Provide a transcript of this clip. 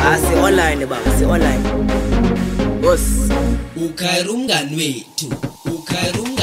asi-online ah, baba si-online bos ukhayira umngani wethu ukhayira